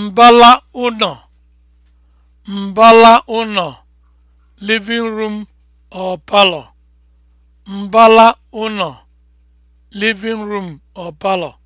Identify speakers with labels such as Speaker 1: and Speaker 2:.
Speaker 1: mbala ụnọ mbala ụnọ living room or parlor mbala ụnọ
Speaker 2: living room or parlor